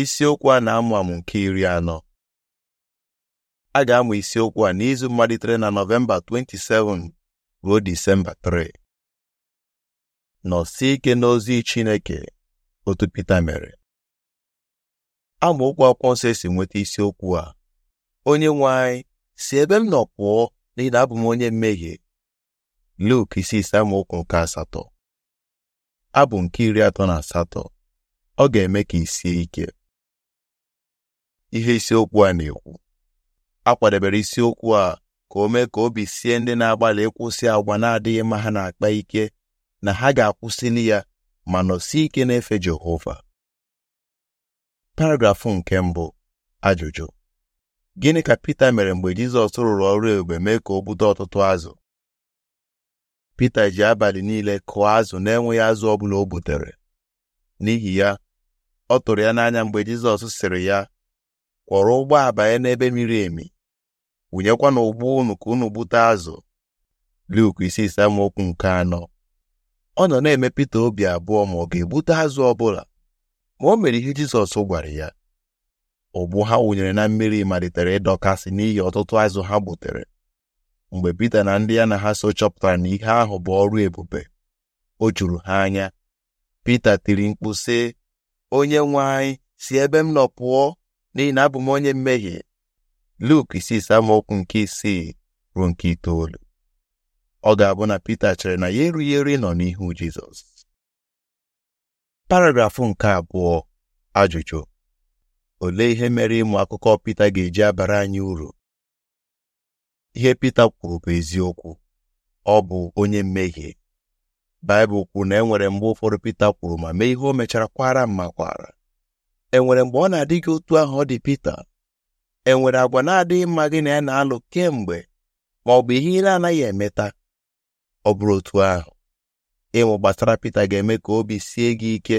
isiokwu a na-amụ amụ nke iri anọ a ga-amụ isiokwu a n'izu malitere na nọvemba 27 ruo disemba 3 nọsie ike n'ozi chineke otu Pita mere amaokwu akwụkwọ nsọ esi nweta isiokwu a onye nwe anyị si ebe m nọ pụọ n'ihi na abụ m onye mmehie Luk isi ise amaokwu nke asatọ abụ nke iri atọ na asatọ ọ ga-eme ka i ike ihe isiokwu a na-ekwu a kwadebere isiokwu a ka o mee ka obi sie ndị na-agbalị ịkwụsị agwa na-adịghị mma ha na-akpa ike na ha ga-akwụsịli ya ma nọsi ike na-efe Jehova paragrafụ nke mbụ ajụjụ gịnị ka Pita mere mgbe Jizọs rụrụ ọrụ ebube mee ka o bute ọtụtụ azụ Pita ji abalị niile kụọ azụ na-enweghị azụ ọ bụla o butere n'ihi ya ọ tụrụ ya n'anya mgbe Jizọs sịrị ya kwọrọ ụgbọ abanye n'ebe miri emi wụnyekwa na ụgbọ unu ka unu gbute azụ Luk isi isisamokwu nke anọ ọ nọ na-eme Pita obi abụọ ma ọ ga-egbute azụ ọbụla ma o mere ihe Jizọs gwara ya ụgbụ ha wụnyere na mmiri malitere ịdọkasị n'ihi ọtụtụ azụ ha gbutere mgbe Pita na ndị ya na ha so chọpụtara na ihe ahụ bụ ọrụ ebube o juru ha anya Pita tiri mkpu sị onye nwe anyị si ebe m nọ pụọ n'ihi na abụ m onye mmehie Luk isi amaokwu nke isii ruo nke itoolu ọ ga-abụ na Pita chere na ya erughị eru nọ n'ihu Jizọs paragrafụ nke abụọ ajụjụ olee ihe mere ịmụ akụkọ Pita ga-eji abara anyị uru ihe Pita kwuru bụ eziokwu ọ bụ onye mmehie Baịbụl kwuru na enwere nwere mgbe ụfọdụ Pita kwuru ma mee ihe o mechara kwara mma kwara enwere mgbe ọ na-adị gị otu ahụ ọ dị Pita enwere agwa na-adịghị mma gị na ya na-alụ kemgbe ma ọ bụ ihe ị na-anaghị emeta ọ bụrụ otu ahụ ịmụ gbasara Pita ga-eme ka obi sie gị ike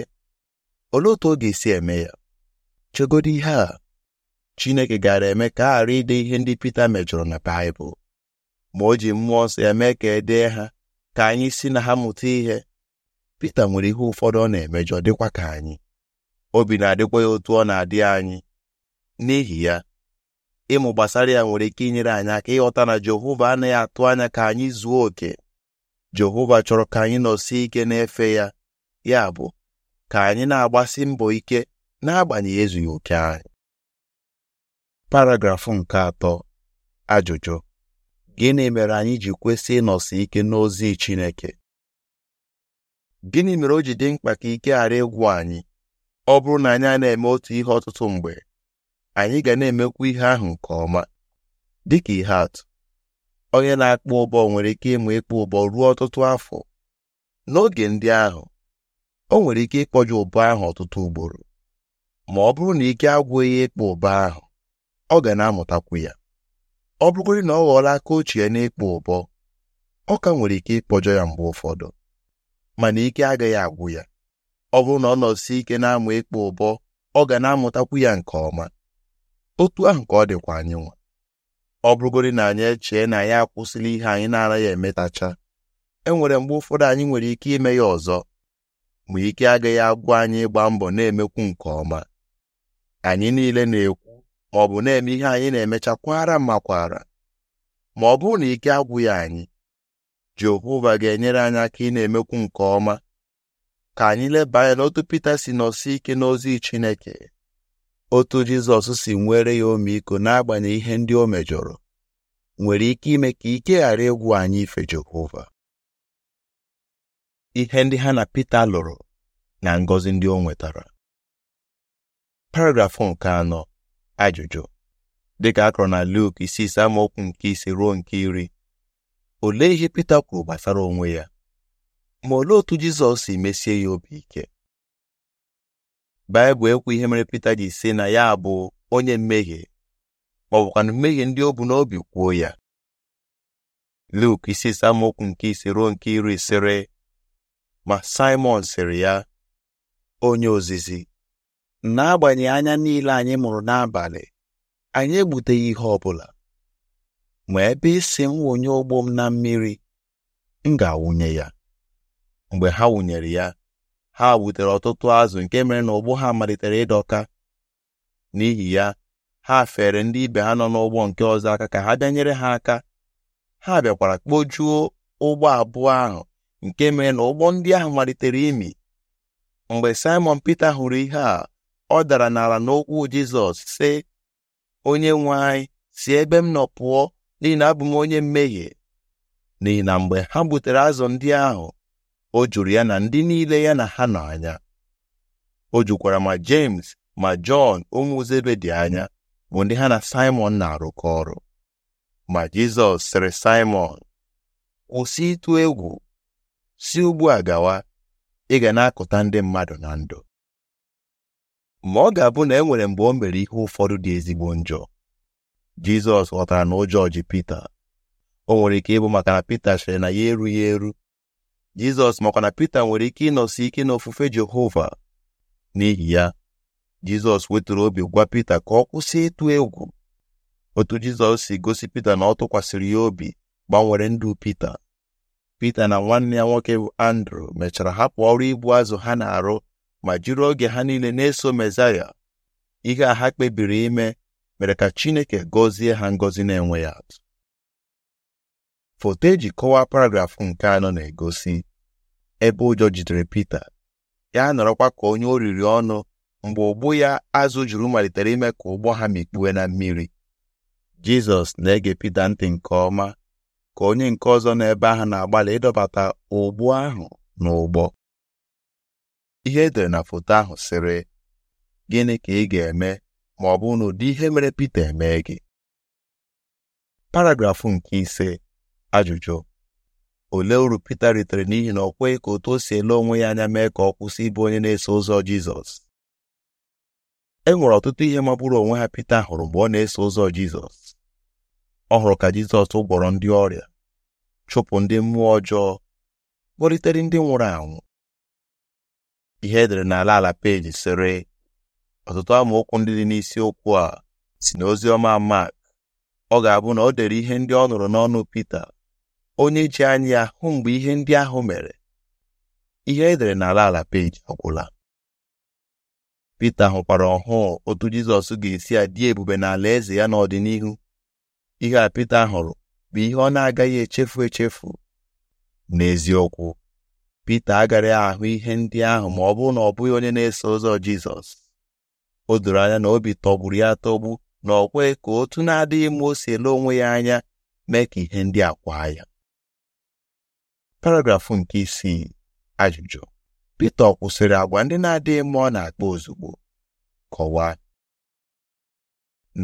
olee otu ọ ga-esi eme ya chegodo ihe a Chineke gara eme ka a ghara ide ihe ndị Pita mejọrọ na Baịbụl ma o ji mmụọ nsọ eme ka e dee ha ka anyị si na ha mụta ihe Pita nwere ihe ụfọdụ ọ na-emejọ dịkwa ka anyị obi na-adịkwa ya otu ọ na-adị anyị n'ihi ya ịmụ gbasara ya nwere ike inyere anyị aka ịghọta na Jehova anaghị atụ anya ka anyị zuo oke Jehova chọrọ ka anyị nọsie ike n'efe ya ya bụ ka anyị na-agbasi mbọ ike n'agbanyeghị ezughị oke anyị paragrafụ nke atọ ajụjụ gịnị mere anyị ji kwesị ịnọsi ike n'ozi Chineke gịnị mere o ji dị mkpa ka ike ghara ịgwụ anyị ọ bụrụ na anyị a na-eme otu ihe ọtụtụ mgbe anyị ga na-emekwa ihe ahụ nke ọma Dị ka ihe atụ onye na-akpụ ụbọ nwere ike ịmụ ịkpụ ụbọ ruo ọtụtụ afọ n'oge ndị ahụ o nwere ike ịkpọje ụbọ ahụ ọtụtụ ugboro ma ọ bụrụ na ike agwụghị ịkpụ ụbọ ahụ ọ ga na-amụtakwu ya ọ bụrụgodị na ọ ghọọla aka ochie ya n'ịkpụ ụbọ ọ ka nwere ike ịkpọjọ ya mgbe ụfọdụ mana ike agaghị agwụ ya ọ bụrụ na ọ nọsi ike na-amụ ịkpụ ụbọ ọ ga na-amụtakwu ya nke ọma otu ahụ ka ọ dịkwa anyị nwa ọ bụrụgodi na anyị echee na ya akwụsịla ihe anyị na-anaghị emetacha e nwere mgbe ụfọdụ anyị nwere ike ime ya ọzọ ma ike agaghị agwụ anyị ịgba mbọ na-emekwu nke ọma anyị niile na-ekwu ọ bụ na-eme ihe anyị na-emecha kwara ma kwara ma ọ bụrụ na ike agwụghị anyị Jehova ga-enyere anyị aka ị na-emekwu nke ọma ka anyị leba anya n'otu Pita si nọsi ike n'ozi Chineke otu Jizọs si nwere ya omeiko n'agbanyeghị ihe ndị o mejọrọ nwere ike ime ka ike ghara ịgwụ anyị ife Jehova ihe ndị ha na Pita lụrụ na ngọzi ndị o nwetara paragrafụ nke anọ ajụjụ dịka akọrọ na Luk isi ise nke ise ruo nke iri olee ihe Pita kwuru gbasara onwe ya ma olee otu Jizọs si mesie ya obi ike Baịbụl ekwu ihe mere Pita ji si na ya bụ onye mmehie ma ọ bụkwa na mmehie ndị o bu n'obi kwuo ya Luk isi samokwu nke ise ruo nke iri sịrị ma Simon sịrị ya onye ozizi n'agbanyeghị anya niile anyị mụrụ n'abalị anyị egbuteghị ihe ọ bụla ma ebe ị m wụnye ụgbọ m na mmiri m ga-awụnye ya mgbe ha wụnyere ya ha gbutere ọtụtụ azụ nke mere na ụgbọ ha malitere ịdọka n'ihi ya ha fere ndị ibe ha nọ n'ụgbọ nke ọzọ aka ka ha bịa nyere ha aka ha bịakwara kpojuo ụgbọ abụọ ahụ nke mere na ụgbọ ndị ahụ malitere imi mgbe Simon Peter hụrụ ihe a ọ dara n'ala n'okwu Jizọs sị onye nwe anyị si ebe m nọ pụọ n'ihi na abụ m onye mmehie n'ihi na mgbe ha gbutere azụ ndị ahụ o juru ya na ndị niile ya na ha nọ anya o jukwara ma James ma Jọn ụmụ dị anya bụ ndị ha na Simon na-arụkọ ọrụ ma Jizọs sịrị Simon kwụsị ịtụ egwu si ugbu a gawa ị ga na-akụta ndị mmadụ na ndụ ma ọ ga-abụ na e nwere mgbe o mere ihe ụfọdụ dị ezigbo njọ Jizọs ghọtara na ụjọ ji Pita o nwere ike ịbụ maka na Pita sịrị na ya erughị eru jizọs makwa na pete nwere ike ịnọsi ike n'ofufe jehova n'ihi ya jizọs wetara obi gwa Pita ka ọ kwụsị ịtụ egwu otu jizọs si gosi pete na ọ tụkwasịrị ya obi gbanwere ndụ pete Pita na nwanne ya nwoke bụ andrew mechara hapụ ọrụ ibu azụ ha na-arụ ma jiri oge ha niile na-eso mezaya ihe a ha kpebiri ime mere ka chineke gọzie ha ngọzi na ya atụ foto eji kọwaa paragrafụ nke anọ na-egosi ebe ụjọ jidere Pita ya nọrọkwa ka onye o riri ọnụ mgbe ụgbụ ya azụ juru malitere ime ka ụgbọ ha mikpue na mmiri Jizọs na-ege Pita ntị nke ọma ka onye nke ọzọ ebe ahụ na-agbalị ịdọbata ụgbụ ahụ n'ụgbọ ihe edere na foto ahụ sịrị gịnị ka ị ga-eme ma ọ bụ na ụdị ihe mere Pita eme gị paragrafụ nke ise ajụjụ olee uru Pita ritere n'ihi na ọ kweghị ka otu o si ele onwe ya anya mee ka ọ kwụsị ịbụ onye na-eso ụzọ Jizọs e nwere ọtụtụ ihe magburu onwe ha Pita hụrụ mgbe ọ na-eso ụzọ Jizọs ọ hụrụ ka Jizọs gwọrọ ndị ọrịa chụpụ ndị mmụọ ọjọọ kpọlitere ndị nwụrụ anwụ ihe edere n'ala ala peji sịrị ọtụtụ amaokwu ndị dị n'isiokwu a si n'ozi ọma Mak ọ ga-abụ na o dere ihe ndị ọ nụrụ n'ọnụ Pita onye ji anya hụ mgbe ihe ndị ahụ mere ihe edere n'ala ala peji agwụla Pita hụkwara ọhụụ otu Jizọs ga-esi adị ebube n'ala eze ya n'ọdịnihu ihe a Pita hụrụ bụ ihe ọ na-agaghị echefu echefu n'eziokwu Pita agaghị ahụ ihe ndị ahụ ma ọ bụrụ na ọ bụghị onye na-eso ụzọ Jizọs o doro anya na obi tọgburu ya tọgbu na ọ ka otu na-adịghị mma o si ele onwe ya anya mee ka ihe ndị a kwaa ya paragrafụ nke isii ajụjụ Pita kwụsịrị agwa ndị na-adịghị mma ọ na-akpa ozugbo kọwaa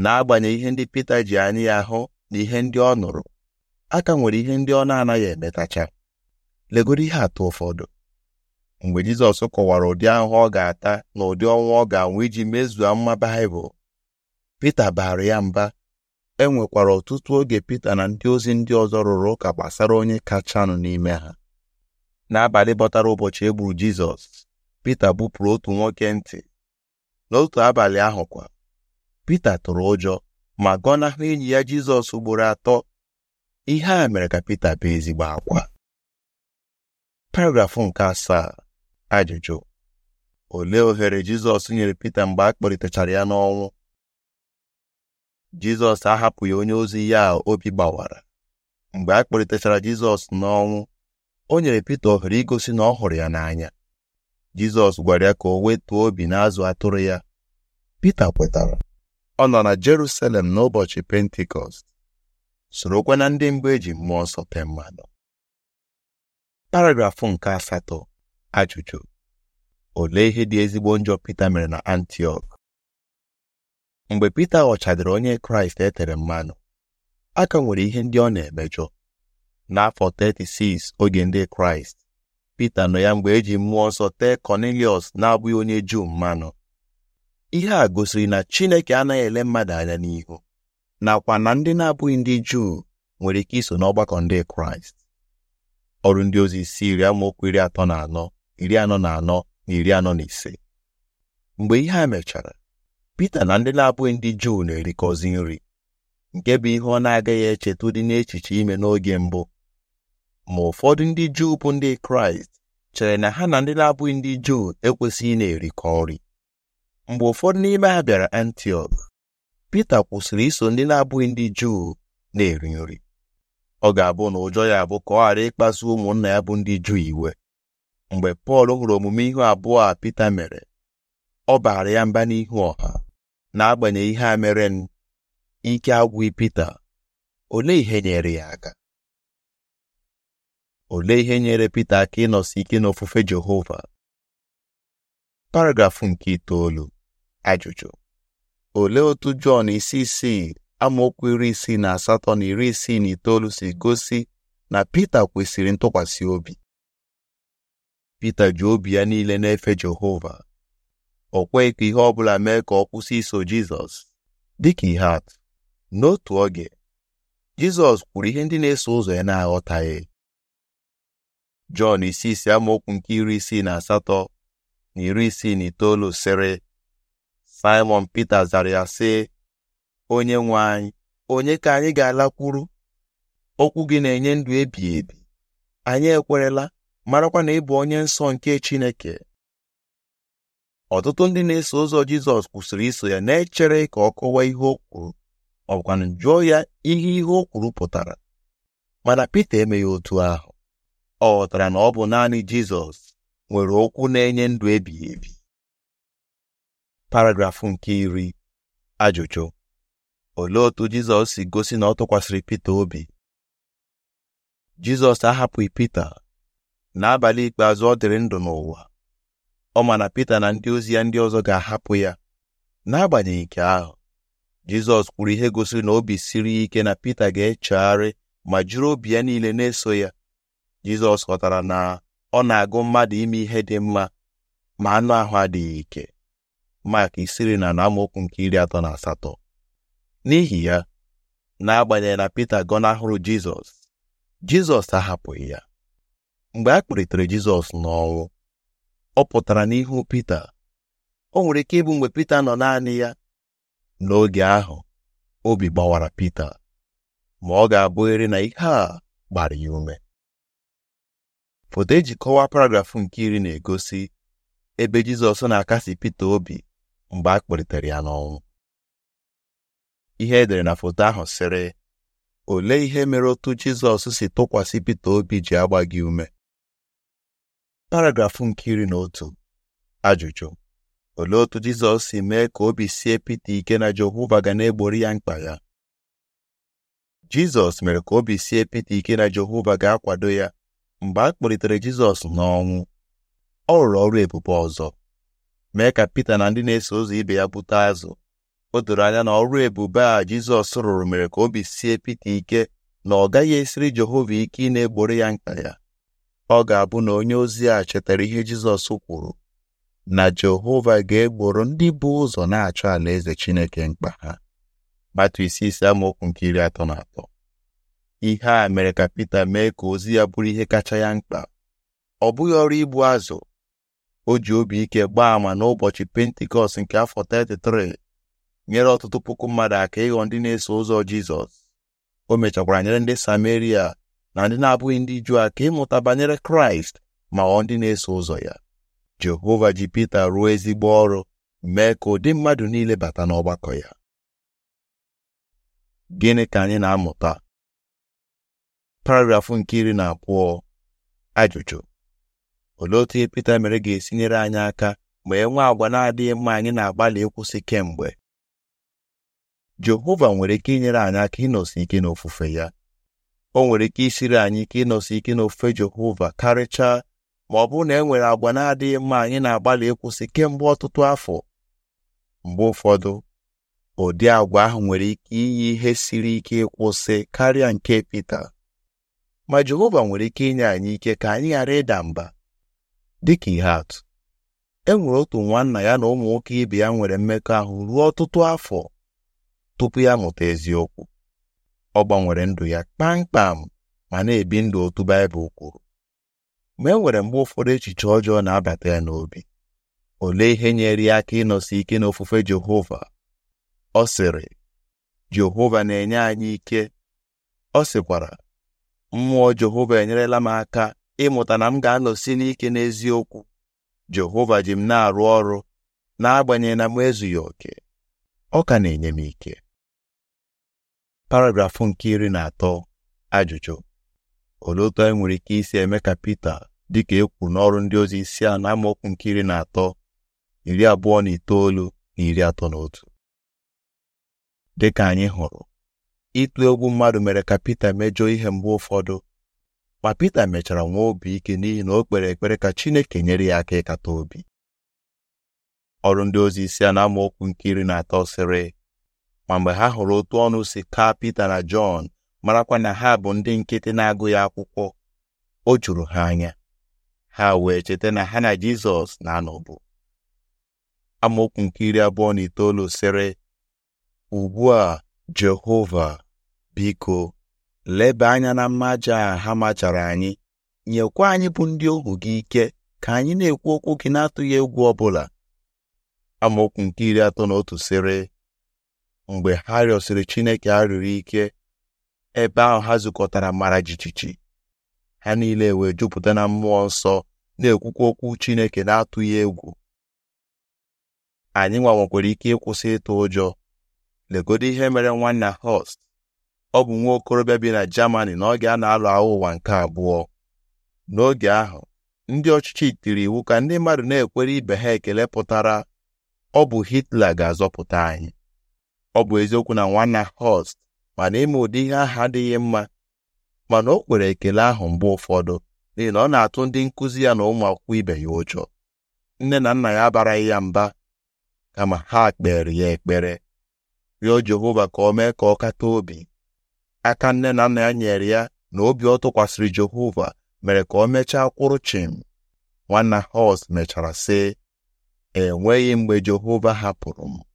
n'agbanyeghị ihe ndị Pita ji anya ya hụ na ihe ndị ọ nụrụ aka nwere ihe ndị ọ na-anaghị emetacha legoro ihe atọ ụfọdụ mgbe Jizọs kọwara ụdị ahụhụ ọ ga-ata na ụdị ọnwa ọ ga-anwụ iji mezuo mma Baịbụl Pita baara ya mba e nwekwara ọtụtụ oge Pita na ndị ozi ndị ọzọ rụrụ ụka gbasara onye kachanụ n'ime ha n'abalị bọtara ụbọchị e gburu Jizọs Pita bupụrụ otu nwoke ntị n'otu abalị ahụ kwa Pita tụrụ ụjọ ma gọnahụ enyi ya Jizọs ugboro atọ ihe a mere ka Pita bụ ezigbo akwa paragrafụ nke asaa ajụjụ olee ohere Jizọs nyere Pita mgbe a kpọlitechara ya n'ọnwụ jizọs ahapụghị onye ozi ya obi gbawara mgbe a kpọlitechara jizọs n'ọnwụ o nyere pete ohere igosi na ọ hụrụ ya n'anya jizọs gwara ya ka o wetuo obi n'azụ atụrụ ya pete kwetara ọ nọ na jerusalem n'ụbọchị pentikọst sorokwa na ndị mbụ eji mmụọ nsọ mmadụ paragrafụ nke asatọ ajụjụ olee ihe dị ezigbo njọ pete mere na antiọk mgbe Pita ghọchadịrị onye Kraịst e tere mmanụ a ka nwere ihe ndị ọ na-emejọ n'afọ 36 oge ndị Kraịst Pita nọ ya mgbe eji mmụọ nsọ tee Kọniliọs na-abụghị onye Juu mmanụ ihe a gosiri na Chineke anaghị ele mmadụ anya n'ihu nakwa na ndị na-abụghị ndị Juu nwere ike iso n'ọgbakọ ndị Kraịst ọrụ ndị ozi isi iri amaokwu iri atọ na anọ iri anọ na anọ na iri anọ na ise mgbe ihe a mechara Pita na ndị na-abụghị ndị Juu na-erikọzi nri nke bụ ihe ọ na-agaghị echeta dị n'echiche ime n'oge mbụ ma ụfọdụ ndị Juu bụ ndị Kraịst chere na ha na ndị na-abụghị ndị Juu ekwesịghị na-erikọ nri mgbe ụfọdụ n'ime ha bịara Antiọk Pita kwụsịrị iso ndị na-abụghị ndị Juu na-eri nri ọ ga-abụ na ụjọ ya bụ ka ọ ghara ịkpasu ụmụnna ya bụ ndị Juu iwe mgbe Pọl hụrụ omume ihu abụọ a Pita mere ọ baara ya mba n'ihu ọha n'agbanyeghị ihe a mere m ike agwụghị Pita olee ihe nyere ya aka olee ihe nyere Pita aka ịnọsi ike n'ofufe Jehova paragrafụ nke itoolu ajụjụ olee otu Jọn isi isii amaokwu iri isii na asatọ na iri isii na itoolu si gosi na Pita kwesịrị ntụkwasị obi Pita ji obi ya niile na-efe Jehova o kweghị ka ihe ọ bụla mee ka ọ kwụsị iso Jizọs dịka ihe atụ n'otu oge Jizọs kwuru ihe ndị na-eso ụzọ ya na-aghọtaghị Jọn isi isi amaokwu nke iri isii na asatọ na iri isii na itoolu sịrị Simon Pita zara ya sị onye nwe anyị onye ka anyị ga-alakwuru okwu gị na-enye ndụ ebighị ebi anyị ekwerela marakwa na ị bụ onye nsọ nke Chineke ọtụtụ ndị na-eso ụzọ jizọs kwụsịrị iso ya na-echere ka ọ kọwaa ihe o kwuru ọ bụkwanụ jụọ ya ihe ihe o kwuru pụtara mana Pita emeghị otu ahụ ọ ghọtara na ọ bụ naanị jizọs nwere okwu na-enye ndụ ebighị ebi paragrafụ nke iri ajụjụ olee otu jizọs si gosi na ọ tụkwasịrị Pita obi jizọs ahapụghị Pita n'abalị ikpeazụ ọ dịrị ndụ n'ụwa ọ ma na Pita na ndị ozi ya ndị ọzọ ga-ahapụ ya n'agbanyeghị nke ahụ Jizọs kwuru ihe gosiri na obi siri ike na Pita ga-echegharị ma jụrụ obi ya niile na-eso ya Jizọs ghọtara na ọ na-agụ mmadụ ime ihe dị mma ma anụ ahụ adịghị ike Mak isiri na amaokwu nke iri atọ na asatọ n'ihi ya n'agbanyeghị na Pita gọnahụrụ Jizọs Jizọs ahapụghị ya mgbe a kpụlitere Jizọs n'ọnwụ ọ pụtara n'ihu Pita o nwere ike ịbụ mgbe Pita nọ naanị ya n'oge ahụ obi gbawara Pita ma ọ ga-abụghịrị na ihe a gbara ya ume foto eji kọwaa paragrafụ nke iri na-egosi ebe Jizọs na-akasi Pita obi mgbe a kpọlitere ya n'ọnwụ ihe edere na foto ahụ sịrị olee ihe mere otu Jizọs si tụkwasị Pita obi ji agba gị ume paragrafụ nke iri na otu ajụjụ olee otu Jizọs si mee ka obi sie pete ike na Jehova ga na-egbori ya mkpa ya Jizọs mere ka obi sie pete ike na Jehova ga-akwado ya mgbe a kpọlitere Jizọs n'ọnwụ ọ rụrụ ọrụ ebube ọzọ mee ka Pita na ndị na-eso ụzọ ibe ya bute azụ o doro anya na ọrụ ebube a Jizọs rụrụ mere ka obi sie pete ike na ọ gaghị esiri Jehova ike ị na egbori ya mkpa ya ọ ga-abụ na onye ozi a chetara ihe Jizọs kwuru na Jehova ga-egboro ndị bụ ụzọ na-achọ alaeze Chineke mkpa ha matu isi isi amaokwu nke iri atọ na atọ ihe a mere ka Pita mee ka ozi ya bụrụ ihe kacha ya mkpa ọ bụghị ọrụ ibu azụ o ji obi ike gbaa àmà n'ụbọchị pentikọst nke afọ 33 nyere ọtụtụ puku mmadụ aka ịghọ ndị na-eso ụzọ Jizọs o mechakwara nyere ndị Sameria na ndị na-abụghị ndị Juu a ka ịmụta banyere Kraịst ma ọ ndị na-eso ụzọ ya Jehova ji Pita ruo ezigbo ọrụ mee ka ụdị mmadụ niile bata n'ọgbakọ ya gịnị ka anyị na-amụta paragrafụ nke iri na abụọ ajụjụ olee otu ihe Pita mere ga-esi nyere anyị aka ma enwe agwa na-adịghị mma anyị na-agbalị ịkwụsị kemgbe Jehova nwere ike inyere anyị aka ịnọsi ike n'ofufe ya o nwere ike isiri anyị ike ịnọsi ike n'ofe Jehova karịchaa ma ọ bụrụ na e nwere agwa na-adịghị mma anyị na-agbalị ịkwụsị kemgbe ọtụtụ afọ mgbe ụfọdụ ụdị agwa ahụ nwere ike iyi ihe siri ike ịkwụsị karịa nke pete ma Jehova nwere ike inye anyị ike ka anyị ghara ịda mba dịka ihe atụ e nwere otu nwanna ya na ụmụ nwoke ibe ya nwere mmekọahụ ruo ọtụtụ afọ tupu ya mụta eziokwu ọ gbanwere ndụ ya kpamkpam ma na-ebi ndụ otu Baịbụl kwuru ma e nwere mgbe ụfọdụ echiche ọjọọ na-abata ya n'obi olee ihe nyere ya aka ịnọsi ike n'ofufe Jehova ọ sịrị Jehova na-enye anyị ike ọ sịkwara mmụọ Jehova enyerela m aka ịmụta na m ga-anọsi n'ike n'eziokwu Jehova ji m na-arụ ọrụ n'agbanyeghị na m ezughị oke ọ ka na-enye m ike paragrafụ nke iri na atọ ajụjụ olee otu anyị nwere ike isi eme ka Pita dịka e kwuru n'ọrụ ndị ozi isi a na amaokwu nke iri na atọ iri abụọ na itoolu na iri atọ na otu dịka anyị hụrụ ịtụ egwu mmadụ mere ka Pita mejọọ ihe mgbe ụfọdụ ma Pita mechara nwee obi ike n'ihi na o kpere ekpere ka Chineke nyere ya aka ịkata obi ọrụ ndị ozi isi a na amaokwu nke iri na atọ sịrị ma mgbe ha hụrụ otu ọnụ si taa Pita na Jọn marakwa na ha bụ ndị nkịtị na agụ ya akwụkwọ o juru ha anya ha wee cheta na ha na Jizọs na-anọbụ amaokwu nke iri abụọ na itoolu sịrị ugbu a Jehova biko leba anya na mmaja ha machara anyị nyekwa anyị bụ ndị ohu gị ike ka anyị na-ekwu okwu gị na-atụghị egwu ọbụla amaokwu nke iri atọ na otu sịrị mgbe ha rịọsịrị Chineke arịrịọ ike ebe ahụ ha zukọtara mara jijiji ha niile wee jupụta na mmụọ nsọ na-ekwukwa okwu Chineke na-atụghị egwu anyị nwa nwekwara ike ịkwụsị ịtụ ụjọ legodo ihe mere nwanna Host ọ bụ nwa okorobịa bi na Germany n'oge a na-alụ agha ụwa nke abụọ n'oge ahụ ndị ọchịchị tiri iwu ka ndị mmadụ na-ekwere ibe ha ekele pụtara ọ bụ Hitler ga-azọpụta anyị ọ bụ eziokwu na nwanna Hurst mana ịma ụdị ihe aha adịghị mma mana o kwere ekele ahụ mgbe ụfọdụ n'ihi na ọ na-atụ ndị nkụzi ya na ụmụ akwụkwọ ibe ya ụjọ nne na nna ya abaraghị ya mba kama ha kpere ya ekpere rịọ Jehova ka o mee ka ọ kata obi aka nne na nna ya nyere ya na obi ọ tụkwasịrị Jehova mere ka o mechaa kwụrụ chim nwanna Hurst mechara sị enweghị mgbe Jehova hapụrụ m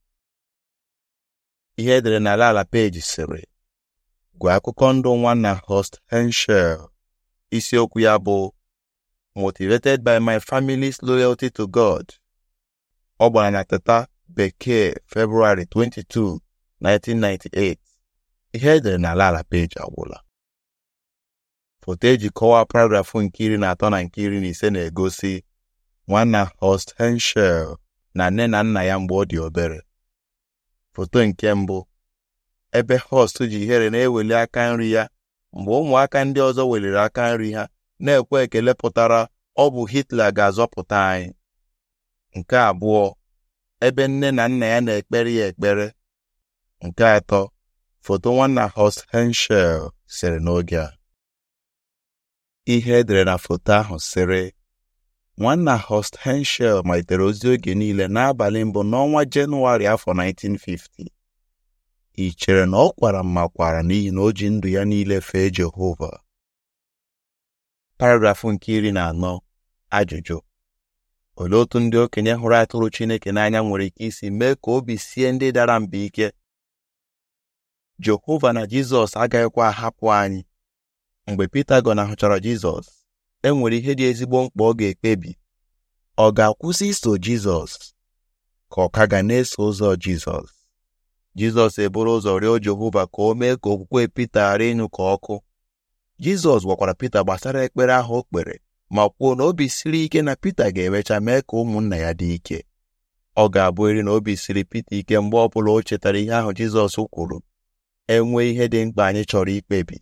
ihe edere n'ala ala peji sịrị gwa akụkọ ndụ nwanna host henshel isiokwu ya bụ motivated by my family's loyalty to god ọ gbara na teta bekee february 22 1998 ihe edere n'ala ala peji agwụla foto eji kọwaa paragrafụ nke iri na atọ na nke iri na ise na-egosi nwanna host henshel na nne na nna ya mgbe ọ dị obere foto nke mbụ ebe host ji ihere na-eweli aka nri ya mgbe ụmụaka ndị ọzọ weliri aka nri ha na-ekwe ekele pụtara ọ bụ Hitler ga-azọpụta anyị nke abụọ ebe nne na nna ya na-ekpere ya ekpere nke atọ foto nwanna host Henshiel sere n'oge a ihe edere na foto ahụ sịrị nwanna Horst Henschel malitere ozi oge niile n'abalị mbụ n'ọnwa Jenụwarị afọ 1950 ị chere na ọ kwara mma kwara n'ihi na o ji ndụ ya niile fee Jehova paragrafụ nke iri na anọ ajụjụ olee otu ndị okenye hụrụ atụrụ Chineke n'anya nwere ike isi mee ka obi sie ndị dara mba ike Jehova na Jizọs agaghịkwa ahapụ anyị mgbe Pita gọnahụchara Jizọs e nwere ihe dị ezigbo mkpa ọ ga-ekpebi ọ ga-akwụsị iso Jizọs ka ọ ka ga na-eso ụzọ Jizọs Jizọs eburu ụzọ rịọ Jehova ka o mee ka okwukwe Pita ghara ịnyụ ka ọkụ Jizọs gwakwara Pita gbasara ekpere ahụ o kpere ma kwuo na obi siri ike na Pita ga-emecha mee ka ụmụnna ya dị ike ọ ga-abụrịrị na obi siri Pita ike mgbe ọ bụla o chetara ihe ahụ Jizọs kwuru enwee ihe dị mkpa anyị chọrọ ikpebi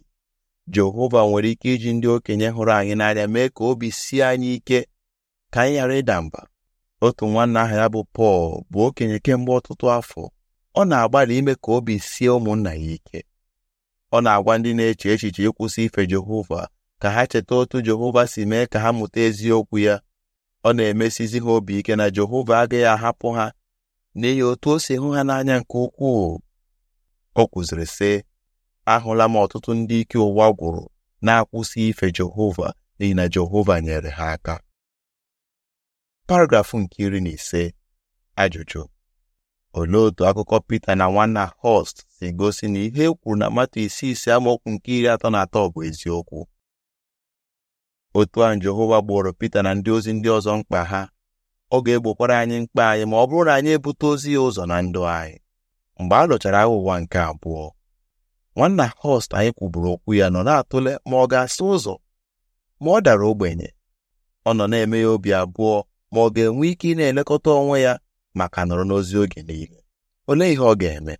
Jehova nwere ike iji ndị okenye hụrụ anyị n'anya mee ka obi sie anyị ike ka anyị ghara ịda mba otu nwanna aha ya bụ Pọl bụ okenye kemgbe ọtụtụ afọ ọ na-agbalị ime ka obi sie ụmụnna ya ike ọ na-agwa ndị na-eche echiche ịkwụsị ife Jehova ka ha cheta otu Jehova si mee ka ha mụta eziokwu ya ọ na-emesizi ha obi ike na Jehova agaghị ahapụ ha n'ihi otu o si hụ ha n'anya nke ukwuu o kwụziri sị ahụla m ọtụtụ ndị ike ụwa gwụrụ na-akwụsị ife Jehova n'ihi na Jehova nyere ha aka paragrafụ nke iri na ise ajụjụ olee otu akụkọ Pita na nwanna Host si gosi na ihe e kwuru na mmatụ isi ise amaokwu nke iri atọ na atọ bụ eziokwu otu ahụ Jehova gboro Pita na ndị ozi ndị ọzọ mkpa ha ọ ga-egbokwara anyị mkpa anyị ma ọ bụrụ na anyị ebute ozi ya ụzọ na ndụ anyị mgbe a lụchara aghụghọ ụwa nke abụọ nwanna Horst anyị kwuburu okwu ya nọ na-atụle ma ọ ga asị ụzọ ma ọ dara ogbenye ọ nọ na-eme ya obi abụọ ma ọ ga-enwe ike ị na-elekọta onwe ya maka nọrọ n'ozi oge niile olee ihe ọ ga-eme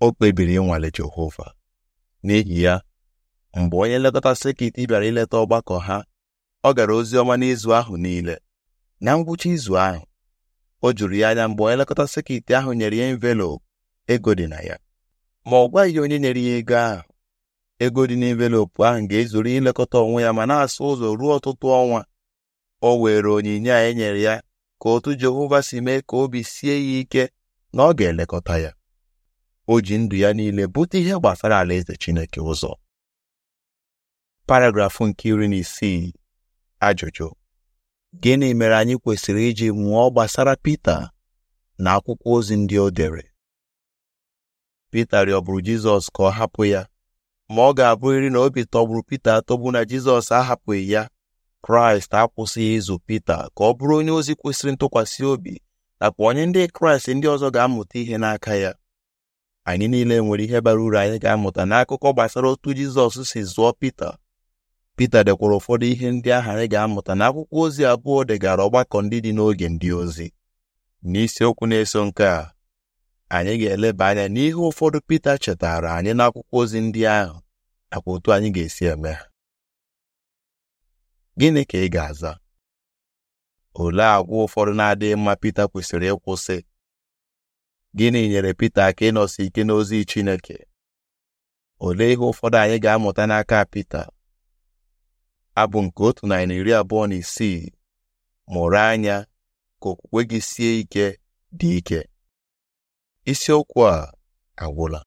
o kpebiri ịnwale Jehova n'ihi ya mgbe onye nlekọta sekit bịara ileta ọgbakọ ha ọ gara ozi ọma n'izu ahụ niile na ngwụcha izu ahụ o juru ya anya mgbe onye nlekọta sekit ahụ nyere ya envelopu ego dị na ya ma ọ gwaghị onye nyere ya ego ahụ ego dị n'envelopu ahụ ga-ezuru ilekọta onwe ya ma na-asa ụzọ ruo ọtụtụ ọnwa o were onyinye a enyere ya ka otu Jehova si mee ka obi sie ya ike na ọ ga-elekọta ya o ji ndụ ya niile bute ihe gbasara alaeze Chineke ụzọ paragrafụ nke iri na isii ajụjụ gịnị mere anyị kwesịrị iji mụọ gbasara Pita na akwụkwọ ozi ndị o dere Pita rịọbụrụ Jizọs ka ọ hapụ ya ma ọ ga-abụrịrị na obi tọgburu Pita atọgbu na Jizọs ahapụghị ya Kraịst akwụsịghị ịzụ Pita ka ọ bụrụ onye ozi kwesịrị ntụkwasị obi nakwa onye ndị Kraịst ndị ọzọ ga-amụta ihe n'aka ya anyị niile nwere ihe bara uru anyị ga-amụta n'akụkọ gbasara otu Jizọs si zụọ Pita Pita dekwara ụfọdụ ihe ndị ahụ anyị ga-amụta na akwụkwọ ozi abụọ degara ọgbakọ ndị dị n'oge ndị ozi n'isiokwu na-eso nke a anyị ga-eleba anya n'ihe ụfọdụ Pita chetara anyị n'akwụkwọ ozi ndị ahụ nakwa otu anyị ga-esi eme ha gịnị ka ị ga-aza olee agwa ụfọdụ na-adịghị mma Pita kwesịrị ịkwụsị gịnị nyere Pita aka ịnọsi ike n'ozi Chineke olee ihe ụfọdụ anyị ga-amụta n'aka Pita abụ nke otu narị na iri abụọ na isii mụrụ anya ka okwukwe gị sie ike dị ike isiokwu a agwụla